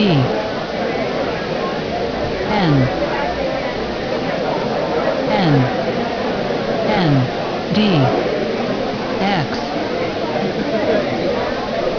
D N N N